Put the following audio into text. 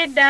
Ịda